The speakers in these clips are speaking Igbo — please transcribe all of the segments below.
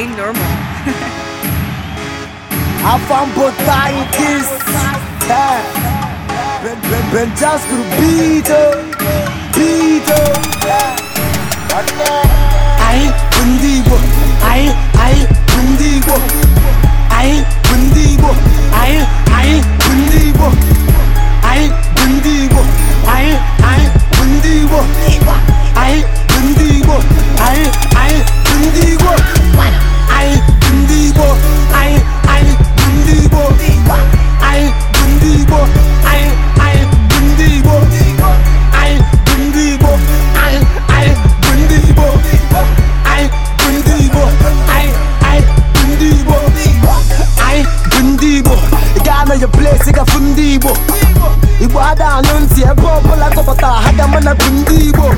playing normal. Avant botagem kiss. É. Ben, ben, just to beat beat Ai, eh. bundigo. Ai, ai, bundigo. na bụ ndị Igbo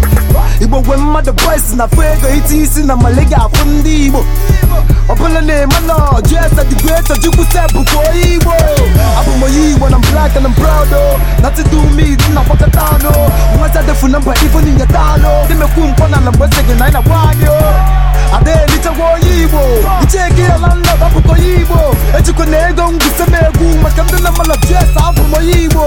Igbo gwe mmadụ boys na afụ ego iti isi na male ga afụ ndị Igbo ọbụla na-eme na ọjụ esa dị greater Chukwu se onye Igbo abụ m onye Igbo na black na proud na to me dị na gbakọta anụ nwata defu na mba ife n'inyeta anụ dị mekwu mkpọ na ala mgbe gị na anyị na-agwa anyị adaelichagwa onye Igbo icheke ya na nna ọbụkọ onye Igbo ejikwa na ego ngwuse m egwu maka ndị na mmalọjụ esa abụ m onye Igbo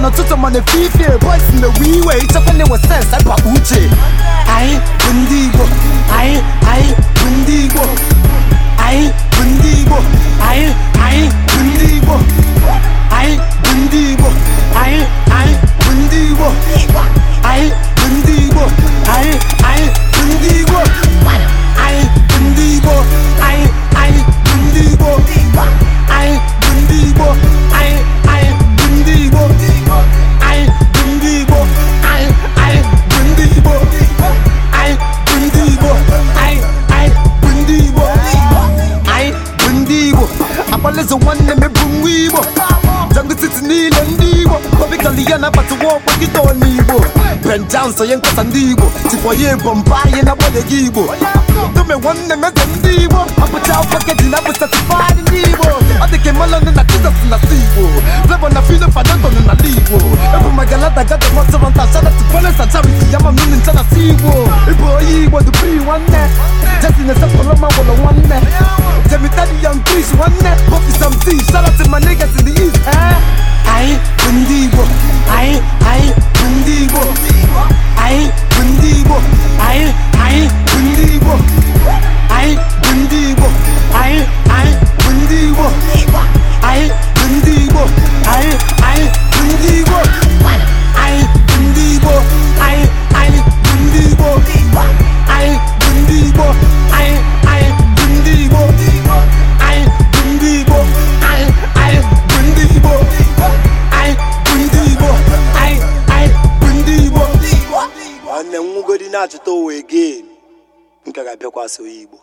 mana ọtụtụ mana efife boys na-ewe iwe ịchekwa na-ewe sens akpa uche anyị bụ ndị Igbo anyị anyị akpalịzụ nwanne m ebu nwa igbo jangụtiti niile ndị igbo kọbikali ya na-abata nwa ọkpa nkịta ọn'igbo benjan sonye nkasa ndị igbo tikwa ya na-agbalịghị igbo dome nwanne m eze ndị igbo na-abụcha tifaadị ndị igbo ọ dị ka melon na jizọs na si igbo flavo na fino fadadon magalada gada mọtụrọnta shadat polesa charity yama mmiri ncha na si igbo ịbụ dupri nwanne jesi na-esepụrụ ma gwụrụ nwanne jemitadi yan kris nwanne na-achụta ụwa again nke ga-abịakwasị onye Igbo